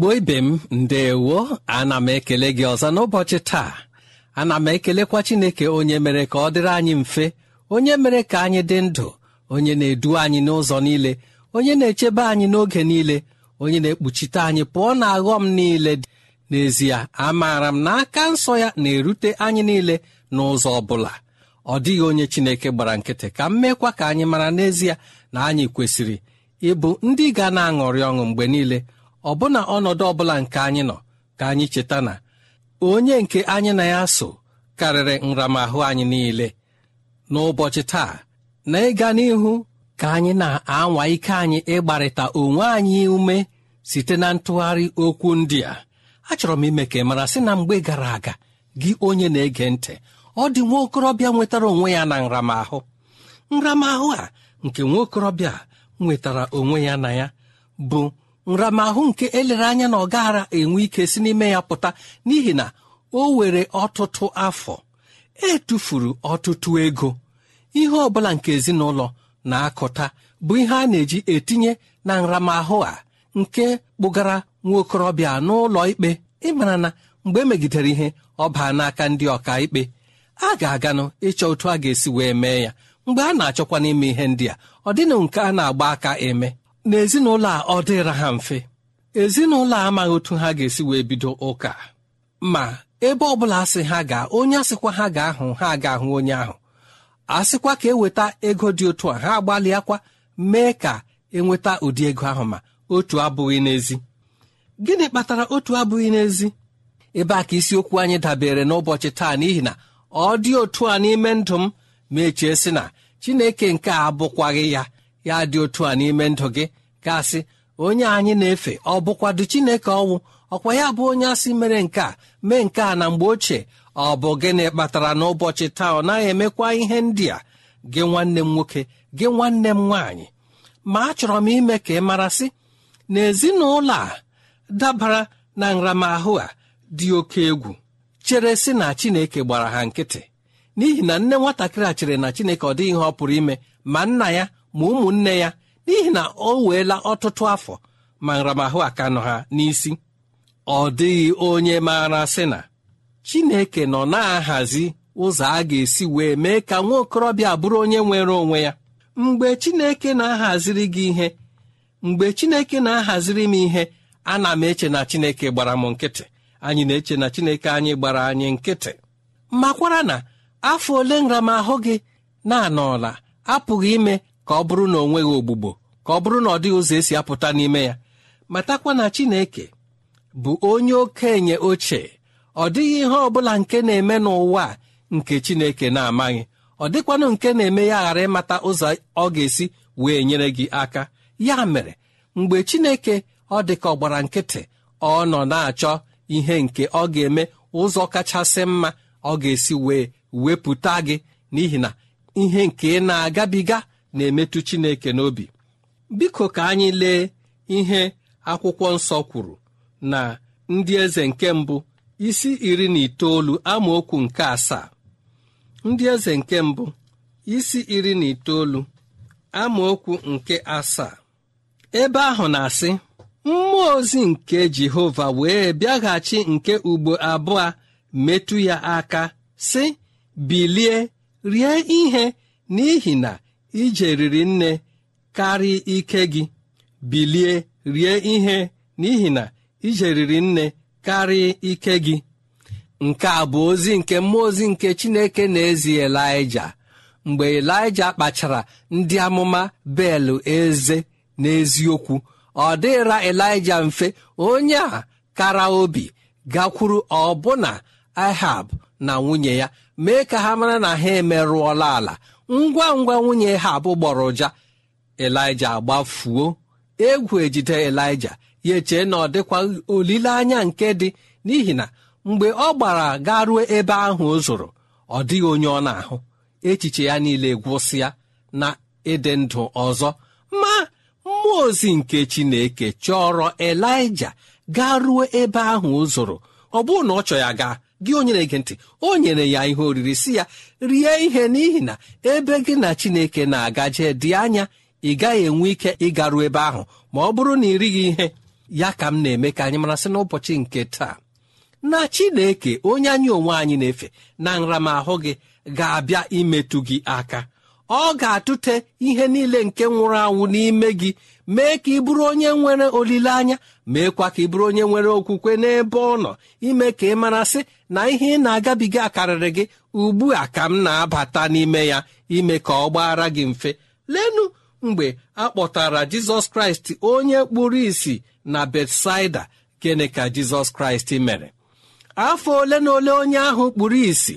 igbo ibe m ndewo ana m ekele gị ọzọ n'ụbọchị taa ana m ekelekwa chineke onye mere ka ọ dịrị anyị mfe onye mere ka anyị dị ndụ onye na-edu anyị n'ụzọ niile onye na-echebe anyị n'oge niile onye na-ekpuchite anyị pụọ na aghọm niile n'ezie amaara m na aka nsọ ya na-erute anyị niile n'ụzọ ọ bụla ọ dịghị onye chineke gbara nkịtị ka m meekwa ka anyị mara n'ezie na anyị kwesịrị ịbụ ndị ga na-aṅụrị ọṅụ mgbe niile ọbụna ọnọdụ ọbụla nke anyị nọ ka anyị cheta na onye nke anyị na ya so karịrị nramahụ anyị niile n'ụbọchị taa na ịga n'ihu ka anyị na-anwa ike anyị ịgbarịta onwe anyị ume site na ntụgharị okwu ndị a achọrọ m ime ka ị mara sị na mgbe gara aga gị onye na-ege ntị ọ dị nwa okorobịa nwetara onwe ya na nramahụ nramahụ a nke nwa okorobịa nwetara onwe ya na ya bụ nramahụ nke elere anya na ọ enwe ike si n'ime ya pụta n'ihi na o were ọtụtụ afọ etufuru ọtụtụ ego ihe ọbụla nke ezinụlọ na-akụta bụ ihe a na-eji etinye na nramahụ a nke kpụgara nwa okorobịa n'ụlọ ikpe ịmara na mgbe emegidere ihe ọ baa n'aka ndị ọka ikpe a ga-aganụ ịchọ otu a ga-esi wee mee ya mgbe a na-achọkwa n'ime ihe ndị a ọ dịnụ nke a na-agba aka eme na ezinụlọ a ọ dịra ha mfe ezinụlọ a amaghị otu ha ga-esi wee bido ụka ma ebe ọ bụla asị ha gaa onye asịkwa ha ga ahụ ha ga-ahụ onye ahụ asịkwa ka eweta ego dị otu a ha agbalịakwa mee ka enweta ụdị ego ahụ ma otu abụghị n'ezi gịnị kpatara otu abụghị n'ezi ebe a ka isiokwu anyị dabere n'ụbọchị taa n'ihi na ọ dị otu a n'ime ndụ m ma echee sị na chineke nke a abụkwaghị ya ya dị otu a n'ime ndụ gị gasị onye anyị na-efe ọ bụkwado chineke ọnwụ ọkwa ya bụ onye asị mere nke a mee nke a na mgbe ochie ọ bụ gịnị kpatara n'ụbọchị taa ọ naghị emekwa ihe ndị a gị nwanne m nwoke gị nwanne m nwaanyị ma achọrọ m ime ka ị marasị na ezinụlọ a dabara na nramahụ a dị oke egwu chere sị na chineke gbara ha nkịtị n'ihi na nne nwatakịrị a chere na chineke ọ dịghị ihe ọ pụrụ ime ma nna ya ma ụmụnne ya n'ihi na o weela ọtụtụ afọ ma nramahụ aka nọ ha n'isi ọ dịghị onye maara sị na Chineke nọ na-ahazi ụzọ a ga-esi wee mee ka nwa okorobịa bụrụ onye nwere onwe ya mgbe Chineke na-ahaziri gị ihe mgbe Chineke na-ahaziri m ihe ana m eche na Chineke gbara m nkịtị anyị na-eche na Chineke anyị gbara anyị nkịtị makwara na afọ ole nramahụ gị na-anọla apụghị ime ka ọ bụrụ na ọ nweghị ogbugbo ka ọ bụrụ na ọ dịghị ụzọ esi apụta n'ime ya matakwa na Chineke bụ onye okenye ochie ọ dịghị ihe ọ bụla nke na-eme n'ụwa nke Chineke na-amaghị ọ dịkwanụ nke na-eme ya ghara ịmata ụzọ ọ ga-esi wee nyere gị aka ya mere mgbe Chineke ọ dị ka ọ gbara nkịtị ọ nọ na-achọ ihe nke ọ ga-eme ụzọ kachasị mma ọ ga-esi wee wepụta gị n'ihi na ihe nke ị na-agabiga na-emetụ Chineke n'obi biko ka anyị lee ihe akwụkwọ nsọ kwuru na ndị eze nke mbụ isi iri na itoolu amaokwu nke asaa ndị eze nke mbụ isi iri na itoolu amaokwu nke asaa ebe ahụ na-asị mmụọ ozi nke Jehova wee bịaghachi nke ugbo abụọ metụ ya aka sị bilie rie ihe n'ihi na ije riri nne karịa ike gị bilie rie ihe n'ihi na ije riri nne karịa ike gị nke a bụ ozi nke mmụọ ozi nke chineke na-ezi elija mgbe elija kpachara ndị amụma belụ eze n'eziokwu ọ dịra elija mfe onye a kara obi gakwuru ọbụna ahab na nwunye ya mee ka ha mara na ha emerụọla ala ngwa ngwa nwunye ha abụ gbọrọ ụja elija gbafuo egwu ejide elija ya echee na ọ dịkwa olileanya nke dị n'ihi na mgbe ọ gbara gaa ebe ahụ o zoro ọ dịghị onye ọ na-ahụ echiche ya niile gwụsịa na ịdị ndụ ọzọ ma mmụọ ozi nke chineke chọrọ elija gaa ruo ebe ahụ o zoro ọ bụrụ na ọ chọ ya gaa gị onye na-ege ntị o nyere ya ihe oriri si ya rie ihe n'ihi na ebe gị na chineke na-agaje dị anya ị gaghị enwe ike ịgaru ebe ahụ ma ọ bụrụ na ị righị ihe ya ka m na-eme ka anyị marasị n'ụbọchị nke taa na chineke onye anyị onwe anyị na-efe na nramahụ gị ga-abịa imetụ gị aka ọ ga-atụte ihe niile nke nwụrụ anwụ n'ime gị mee ka ị bụrụ onye nwere olileanya meekwa ka ị bụrụ onye nwere okwukwe n'ebe ọ nọ ime ka ị mara sị na ihe ị na-agabiga akarịrị gị ugbu a ka m na-abata n'ime ya ime ka ọ gbaara gị mfe lenu mgbe a kpọtara jizọs kraịst onye kpụrụ isi na betsaida gịnị ka jizọs kraịst mere afọ ole na ole onye ahụ kpụrụ isi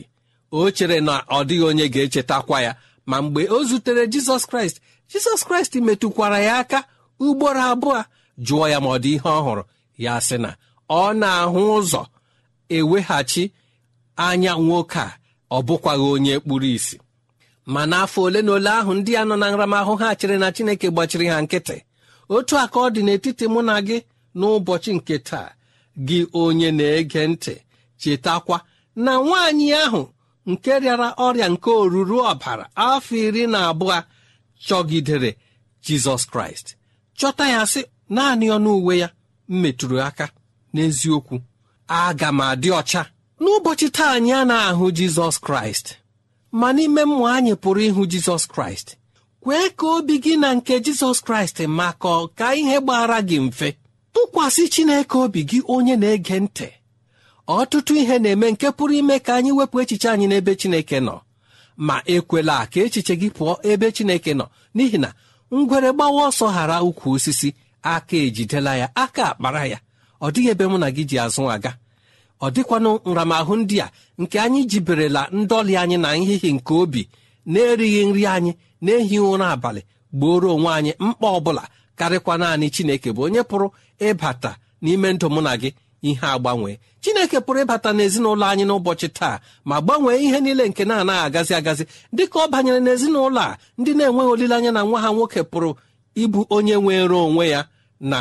o chere na ọ dịghị onye ga-echetakwa ya ma mgbe o zutere jizọs kraịst jizọs kraịst metụkwara ya aka ugboro abụọ jụọ ya ma ọ dị ihe ọhụrụ ya sị na ọ na-ahụ ụzọ eweghachi anya nwoke a ọ bụkwaghị onye kpuru isi ma n'afọ ole na ole ahụ ndị a nọ na nramahụ ha chịrị na chineke gbachiri ha nkịtị otu aka ọ dị n'etiti mụ na gị n'ụbọchị nke taa gị onye na-ege ntị chetakwa na nwaanyị ahụ nke rịara ọrịa nke oruru ọbara afọ iri na abụọ chọgidere jizọs kraịst chọta ya sị naanị ọnụ uwe ya metụrụ aka n'eziokwu aga m adị ọcha n'ụbọchị taa anyị a na-ahụ jizọs kraịst ma n'ime mmụọ anyị pụrụ ịhụ jizọs kraịst kwee ka obi gị na nke jizọs kraịst maka ka ihe gbara gị mfe tụkwasị chineke obi gị onye na-ege ntị ọtụtụ ihe na-eme nke pụrụ ime ka anyị wepụ echiche anyị n'ebe Chineke nọ ma ekwela ka echiche gị pụọ ebe Chineke nọ n'ihi na ngwere gbawa ọsọ ghara ukwu osisi aka ejidela ya aka akpara ya ọ dịghị ebe mụ na gị ji azụ aga ọ dịkwanụ nramahụ ndị a nke anyị jiberela ndọli anyị na nhịhị nke obi na-erighị nri anyị na-ehi ụra abalị gbuoro onwe anyị mkpa ọ bụla karịkwa naanị Chineke bụ onye pụrụ ịbata n'ime ndụ mụ na gị ihe agbanwe chineke pụrụ ịbata n'ezinụlọ anyị n'ụbọchị taa ma gbanwee ihe niile nke na-anaghị agazi agazi dịka ọ banyere n'ezinụlọ a ndị na-enweghị olileanya na nwa ha nwoke pụrụ ịbụ onye nwere onwe ya na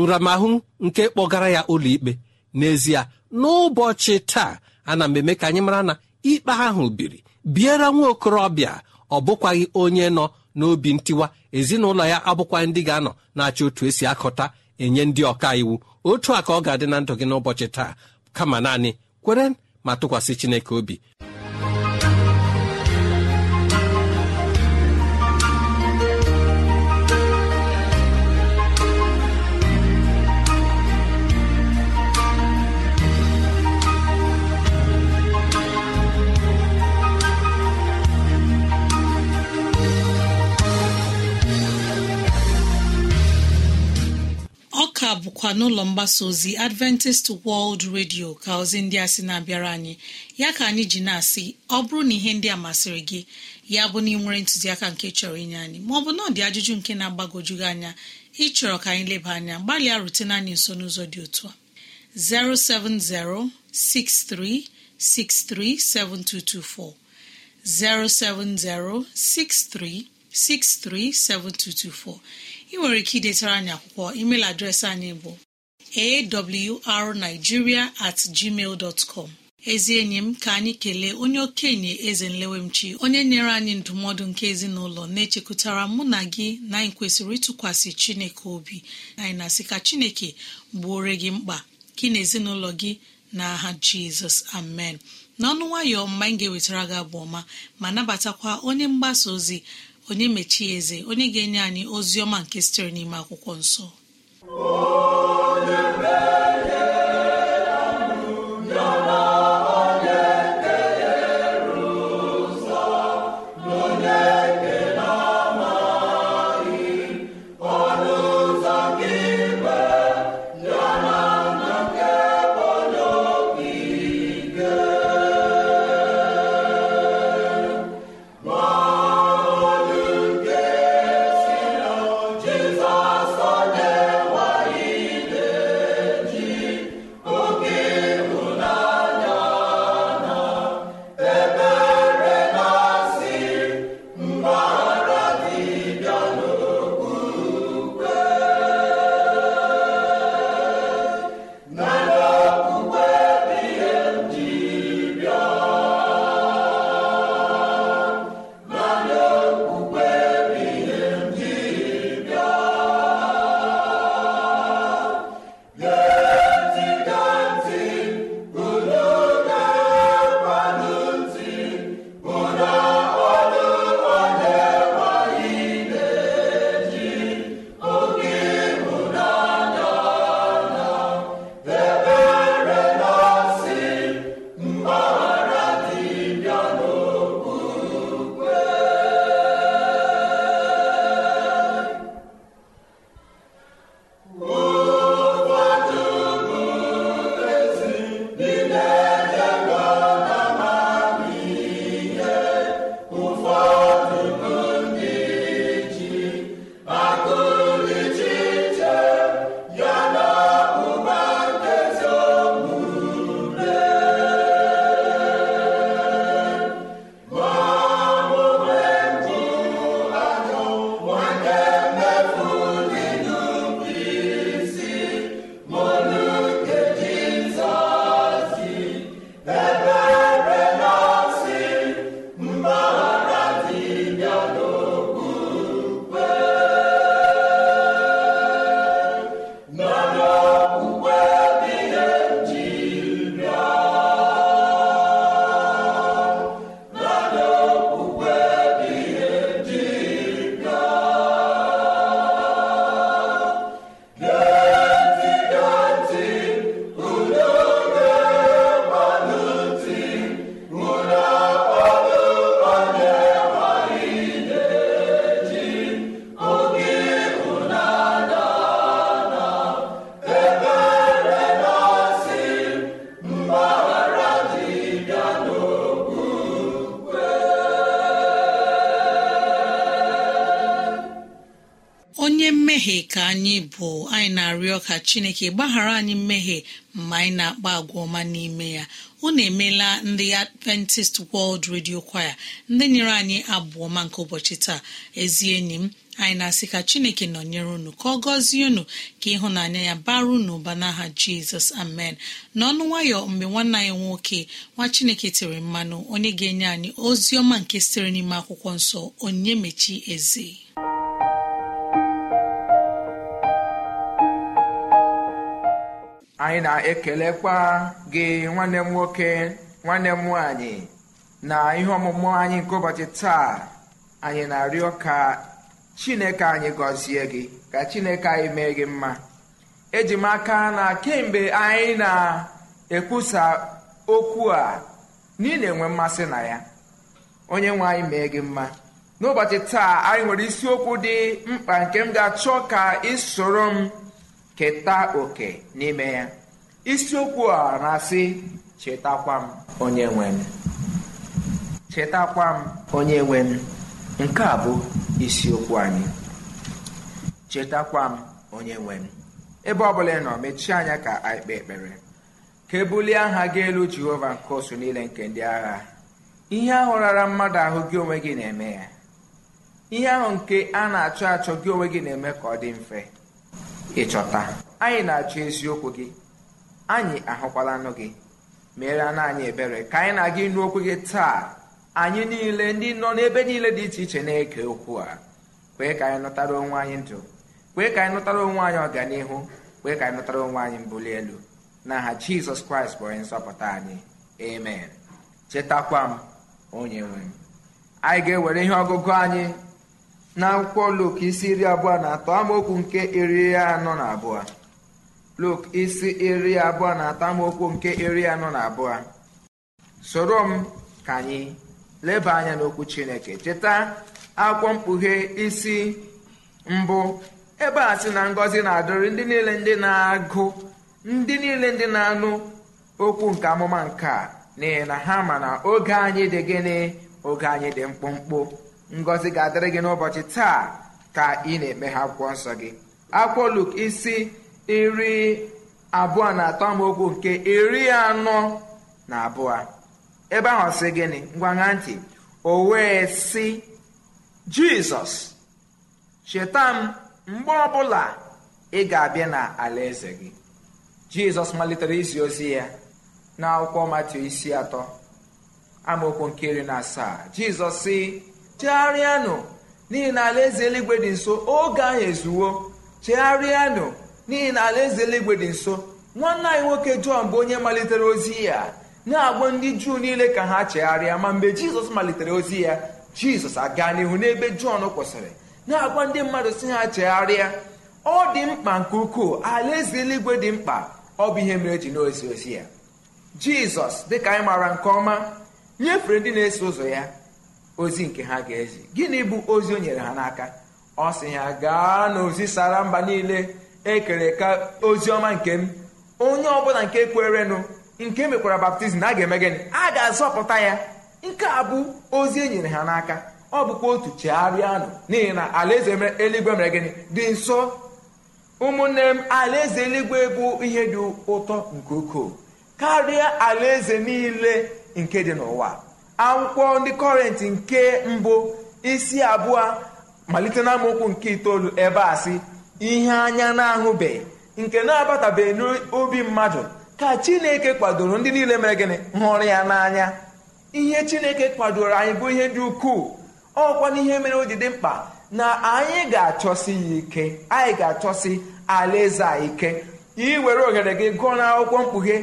nramahụ nke kpọgara ya ụlọikpe n'ezie n'ụbọchị taa ana m eme ka anyị mara na ikpe ahụ biri biere nwa okorobịa ọ bụkwaghị onye nọ n'obi ntiwa ezinụlọ ya abụkwaghị ndị ga-anọ na-achị otu esi akọta enye ndị ọka iwu otu a ka ọ ga-adị na ndụ gị n'ụbọchị taa kama naanị kwere ma tụkwasị chineke obi a bụkwa n'ụlọ mgbasa ozi adventist world radio ka ozi ndị a sị na-abịara anyị ya ka anyị ji na-asị ọ bụrụ na ihe ndị a masịrị gị ya bụ na ị nwere ntụziaka nke chọrọ inye anyị ma bụ na ọ dị ajụjụ nke na-agbagojugị anya ịchọrọ ka anyị leba anya gbalịa rutena anyị nso n'ụzọ dị otu a 63 7224. ị nwere ike idetara anyị akwụkwọ email adreesị anyị bụ arigiria at gmail dọtcọm ezi enyi m ka anyị kelee onye okenye eze nlewemchi onye nyere anyị ndụmọdụ nke ezinụlọ na-echekụtara mụ na gị na anyị kwesịrị ịtụkwasị chineke obi anyị na-asị ka chineke gbuore gị mkpa gị na ezinụlọ gị na aha jizọs amen n'ọnụ nwayọ mma anyị ga-ewetara gị abụ ọma ma nabatakwa onye mgbasa ozi onye mechie eze onye ga-enye anyị ozi ọma nke sitere n'ime akwụkwọ nsọ igbo anyị na-arịọ ka chineke gbaghara anyị mmehie mma anyị na-akpa agwa ọma n'ime ya unu emeela ndị adventist world radio kwaya ndị nyere anyị abụọ ma nke ụbọchị taa ezi enyi m anyị na-asị ka chineke nọnyere unu ka ọ gọzie unu ka ịhụnanya ya bara unu ụba n'aha jizọs amen n'ọnụ nwayọ mgbe nwanne anyị nwoke nwa chineke tiri mmanụ onye ga-enye anyị ozi ọma nke sitere n'ime akwụkwọ nsọ onye mechi eze anyị na-ekelekwa gị nwanne m nwoke nwanne m nwanyị na ihe ọmụmụ anyị nke ụbọchị taa anyị na-arịọ ka chineke anyị gọzie gị ka chineke anyị mee gị mma eji m aka na kemgbe anyị na-ekwusa okwu a niile enwe mmasị na ya onye nwe anyị mee gị mma n'ụbọchị taa anyị nwere isiokwu dị mkpa nke m ga-achọ ka ị soro m keta oke n'ime ya isiokwu a na-asị chetakwa m onye nwe m chetakwa m onye nwe m nke a bụ isiokwu anyị chetakwa m onye nwe m ebe ọbụla ị nọ mechie anya ka anyị kpee ekpere ka ebulie aha gị elu jehova nke osu niile nke ndị agha ihe ahụ rara mmadụ ahụ gị onwe gị na-eme ya ihe ahụ nke a na-achọ achọ gị onwe gị na-eme ka ọ dị mfe ịchọta anyị na-achọ eziokwu gị anyị ahụkwalanụ gị mere na anyị ebere ka anyị na-aga ịnụ okwu gị taa anyị niile ndị nọ n'ebe niile dị iche iche na-eke okwu a kwee ka anyị nụtara onwe anyị ndụ kwee ka anyị nụtara onwe anyị ọganihu kwee ka anyị nụtara onwe anyị mbuli elu na aha jizọs kraịst bụ onye Nsọpụta anyị amen chetakwa m onye nwe m anyị ga-ewere ihe ọgụgụ anyị na akwụkwọ lok isi iri abụọ na atọ amaokwu nke iri anọ na abụọ lok isi iri abụọ na atọ amaokwu nke iri anọ na abụọ soro m ka anyị leba anya n'okwu chineke cheta akwụkwọ mkpughe isi mbụ ebe a sị na ngọzi na-adịrị ndị niile ndị na-agụ ndị niile ndị na-anụ okwu nke amụma nke a n'ihi na ha ma na oge anyị dị gịnị oge anyị dị mkpụmkpụ ngọzi ga-adịrị gị n'ụbọchị taa ka ị na-eme ha akwụkwọ nsọ gị akwụkwọ Luk isi iri abụọ na atọ amaokwu nke iri anọ na abụọ ebe ahụ sị gịnị ngwaṅa ntị o wee sị Jizọs cheta m mgbe ọbụla ị ga-abịa na alaeze gị Jizọs malitere izi ozi ya n'akwụkwọ Matiu isi atọ amaokwu nke iri na asaa Jizọs sị chegharịanụ n'ihi na alaeze eluigwe dị nso oge ahụ ezuwo chegharịanụ n'ihi na alaeze eluigwe dị nso nwanne anyị nwoke jọn bụ onye malitere ozi ya na-agwa ndị juu niile ka ha chegharịa ma mgbe jizọs malitere ozi ya jizọs aga n'ihu n'ebe jọn kwụsịrị na-agwa ndị mmadụ si ha chegharịa ọ dị mkpa nke ukwuu alaeze eluigwe dị mkpa ọ bụ ihe mere e ji n'ozi ozi ya jizọs dịka anyị maara nke ọma nyefere ndị na-eso ụzọ ya ozi nke ha ga-ezi gịnị bụ ozi o nyere ha n'aka ọ sị ha gaa n'ozi sara mba niile ekere ka ozi ọma nke m onye ọbụla nke kwerenụ nke e mekwara baptizim a ga-eme gịnị a ga-azọpụta ya nke a bụ ozi e nyere ha n'aka ọ bụkwa otu chegharịanụ n'ihi na alaeze eluigwe mere gịnị dị nso ụmụnne m alaeze eluigwe bụ ihe dị ụtọ nke ukwuu karịa alaeze niile nke dị n'ụwa akwụkwọ ndị kọrentị nke mbụ isi abụọ malite na nke itoolu ebe a sị ihe anya na-ahụbeghị nke na-abatabeghị n'obi mmadụ ka chineke kwadoro ndị niile mere gịnị hụrụ ya n'anya ihe chineke kwadoro anyị bụ ihe dị ukwuu ọkwa n'ihe mere o ji dị mkpa na anyị ga-achọsi ya ike anyị ga-achọsi alaeze ike iwere ohere gị gụọ n'akwụkwọ mkpughe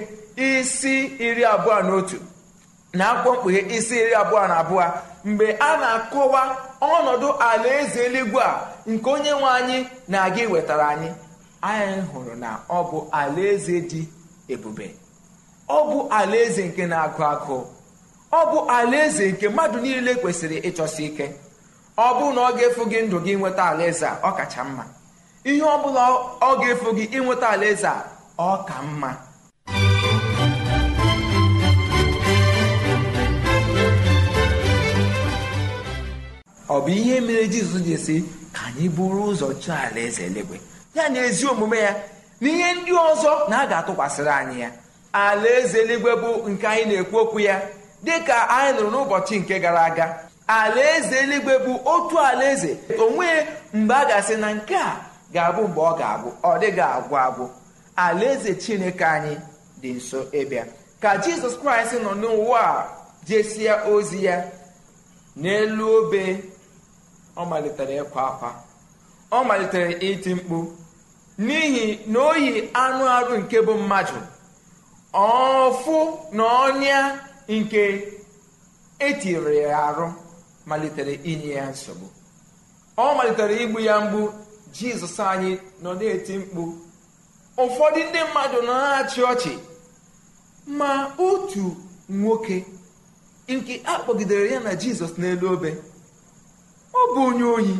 isi iri abụọ na otu na akwụkwọ mkpughe isi iri abụọ na abụọ mgbe a na-akọwa ọnọdụ alaeze eluigwe a nke onye nwe anyị na-aga iwetara anyị anyị hụrụ na ọ bụ alaeze dị ebube ọ bụ alaeze nke na-agụ agụ ọ bụ alaeze nke mmadụ niile kwesịrị ịchọsi ike ọ bụrụ na ọ ga-efu gị ndụ gị nweta alaeze a ọ kacha mma ihe ọ bụla ọ ga-efu gị ịnweta alaeze a ọ ka mma ọ bụ ihe mere jizọs ji esi ka anyị buru ụzọ chọọ alaeze eluigwe ya na ezi omume ya na ihe ndị ọzọ na a ga-atụkwasịrị anyị ya alaeze eluigwe bụ nke anyị na-ekwu okwu ya dị ka anyị nụrụ n'ụbọchị nke gara aga alaeze eluigwe bụ otu alaeze onwe mgbe a gasị asị na nke a ga-abụ mgbe ọ ga-abụ ọ dịghị agwụ agwụ alaeze chineke anyị dị nso ịbịa ka jizọs kraịst nọ n'ụwa jesie ozi ya n'elu obe ọ malitere ịkwa akwa ọ malitere iti mkpu n'ihi na oyi anụ arụ nke bụ mmadụ ọfụ na ọnya nke etiri ya arụ malitere inye ya nsogbu ọ malitere igbu ya mgbu jizọs anyị nọ na-eti mkpu ụfọdụ ndị mmadụ na-achị ọchị ma otu nwoke nke akpọgidere ya na jizọs n'elu obe ọ bụ onye ohi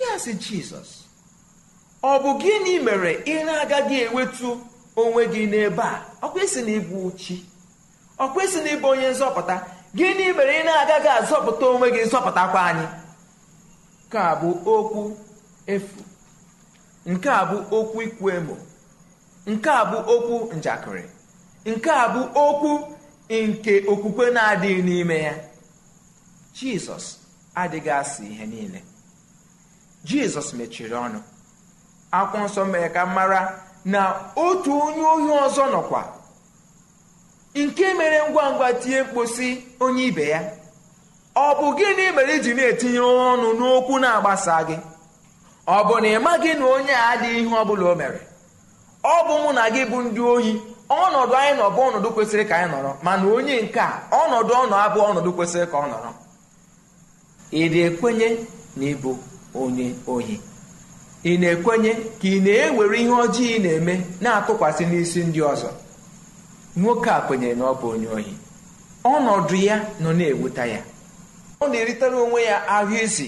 ya sị jizọs ọ bụ gịnị mere ị na-agaghị enwetu onwe gị n'ebe a ọ kwesị na ịbụ chi ọ na ịbụ onye nzọpụta gịnị mere ị na-agaghị azọpụta onwe gị nzọpụtakwa anyị nke a bụ okwu efu nke a bụ okwu ikwu emo nke a bụ okwu njakịrị nke a bụ okwu nke okwukwe na-adịghị n'ime ya jizọs adịghị asị ihe niile jizọs mechiri ọnụ akwụkwọ nsọ mere ka mara na otu onye ohi ọzọ nọkwa nke mere ngwa ngwa tinye mkposi onye ibe ya ọ bụ gịnị mere iji na-etinye ọnụ n'okwu na-agbasa gị ọ bụ na ị maghị na onye a adịghị ihe ọ bụla o mere ọ bụ mụ na gị bụ ndị ohi ọnọdụ anyị nọ bụ ọnọdụ kwesịrị ka anyị nọrọ mana onye nke a ọnọdụ ọnọ abụ ọnọdụ kwesịrị ka ọ nọrọ ị na-ekwenye na ịbụ onye ohi ị na-ekwenye ka ị na-ewere ihe ọjọọ ị na-eme na-atụkwasị n'isi ndị ọzọ nwoke a kwenyere na ọ bụ onye ohi ọnọdụ ya nọ na-ewuta ya ọ na-eritere onwe ya ahụ isi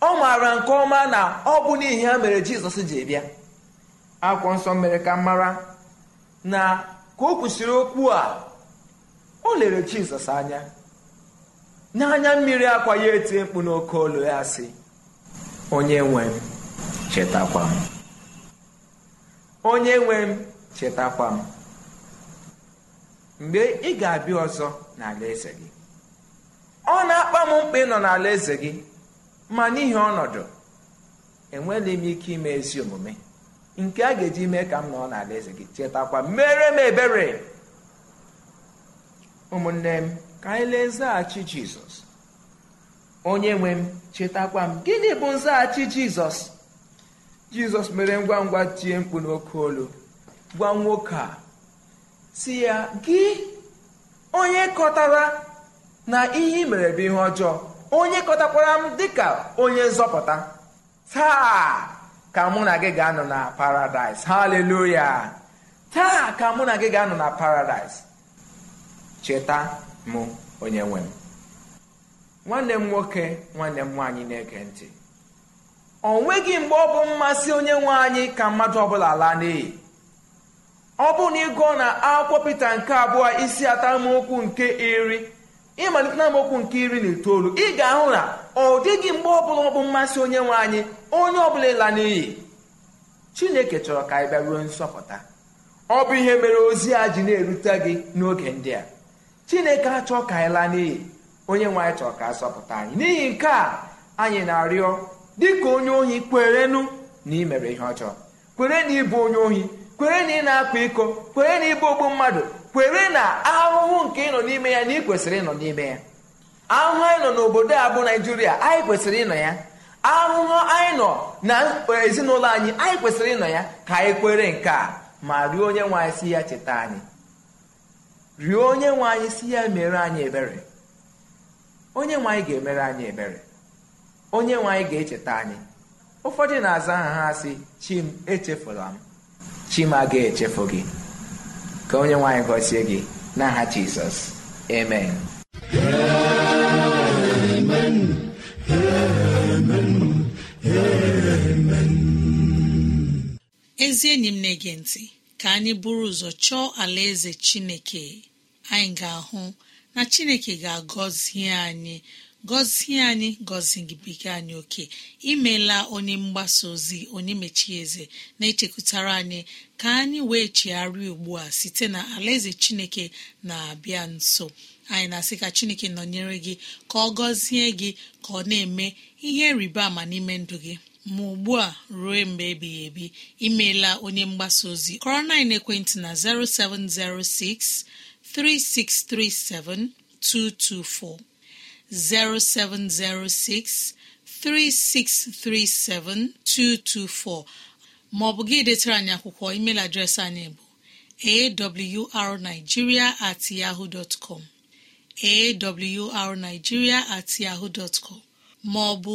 ọ maara nke ọma na ọ bụ n'ihi ha mere jizọs ji bịa akwụkwọ nsọ mere ka mara na ka o kwesịrị okwu a o lere jizọs anya n'anya mmiri akwa ya etie mkpu n'oke olu ya sị onye nwe m chetakwa m onye nwe m chetakwa m mgbe ị ga-abịa ọzọ n'ala eze gị ọ na-akpa m mkpa ịnọ n'ala eze gị ma n'ihi ọnọdụ enweghị m ike ime ezi omume nke a ga-eji mee ka m nọ n'ala eze gị chetakwa mere m ebere ụmụnne m ka anyị lee nzaghachi jizọs onye nwe m chetakwa m gịnị bụ nzaghachi jizọs jizọs mere ngwa ngwa tie mkpu n'oke olu gwa nwoke a si ya gị onye kọtara na ihe ị mere bụ ihe ọjọọ onye kọtakwara m dịka onye nzọpụta taa ka mụ na gị ga-anọ na paradaịs haleluya taa ka mụ na gị ga-anọ na paradaịs cheta mụ onye nwe m nwanne m nwoke nwanne m nwaanyị na-ege ntị ọ nweghị mgbe ọ bụ mmasị onye nwe anyị ka mmadụ ọbụla laa n'iyi ọ bụrụ na ị gụọ na akwụkwọ pete nke abụọ isi atamokwu nke iri ịmalite na amaokwu nke iri na itoolu ị ga-ahụ na ọ dịghị mgbe ọbụla ọ bụ mmasị onye nwe anyị onye ọbụla ịla n'iyi chineke chọrọ ka anyị bịa ruo nsọpụta ọ bụ ihe mere ozi a ji na-erute gị n'oge ndị a chineke achọ ka anyị laa n'iyi onye nwe anyị chọrọ ka asọpụta sọpụta anyị n'ihi nke a anyị na-arịọ dịka onye ohi nu na ị mere ihe ọjọọ kwere na ịbụ onye ohi kwere na ị na-akpa iko kwere na ịbụ ogbu mmadụ kwere na ahụhụ nke ịnọ n'ime ya na ị kwesịrị ịnọ n'ime ya ahụhụ anyị nọ n'obodo a bụ naijiria anyị kwesịrị ịnọ ya ahụhụ anyị nọ na ezinụlọ anyị anyị kwesịrị ịnọ ya ka anyị kwere nke a ma rịọ onye nwe anyị si ya cheta anyị rịọ onye nwe anyị si ya mere anyị ebere onye nwe anyị ga-emere anyị ebere onye nwe anyị ga-echeta anyị ụfọdụ na-aza aha ha sị chim echefula m chim aga echefu gị ka onye nwe anyị gọzie gị n'aha jizọs amen ezi enyi m na-ege ntị ka anyị buru ụzọ chọọ alaeze chineke anyị ga-ahụ na chineke ga-agọzie anyị gọzie anyị gọzi gị bekee anyị oke imela onye mgbasa ozi onye mechie eze na-echekwutara anyị ka anyị wee chigharịa ugbu a site na alaeze chineke na-abịa nso anyị na-asị ka chineke nọnyere gị ka ọ gọzie gị ka ọ na-eme ihe rịba ama n'ime ndụ gị ma ugbu a ruo mgbe ebighị ebi imeela onye mgbasa ozi kọrọ na ekwentị na 0706 3637224 0706 3637224 maọbụ gị detara anyị akwụkwọ email adreesị anyị bụ awrnigeria at yahoo dot com at yahoo dot com maọbụ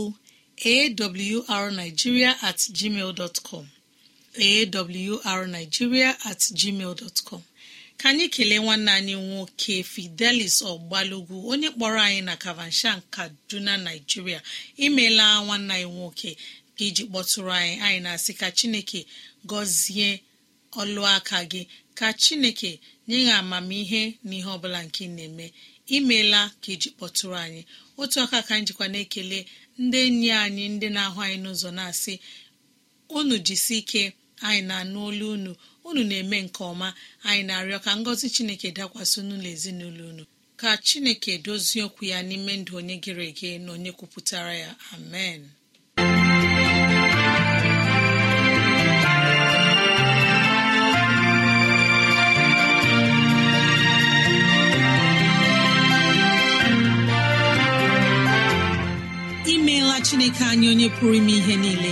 awrnigeria at gmail dot com awrnigeria at gmail dot com ka anyị kelee nwanne anyị nwoke fidelis ọgbalugwu onye kpọrọ anyị na kavanshan kaduna naijiria imela nwanne anyị nwoke ka iji kpọtụrụ anyị anyị na-asị ka chineke gọzie ọlụaka gị ka chineke nye ya amamihe na ihe ọbụla nke ị na-eme imela ka iji kpọtụrụ anyị otu aka ka anyị jikwa na-ekele ndị enyi anyị ndị na-ahụ anyị n'ụzọ na-asị unu jisi ike anyị na-anụ olu unu unu na-eme nke ọma anyị na-arịọ ka ngọzi chineke dakwasị n'ụlọ ezinụlọ unu ka chineke dozie okwu ya n'ime ndụ onye gịrị ege na onye kwupụtara ya amen imeela chineke anyị onye pụrụ ime ihe niile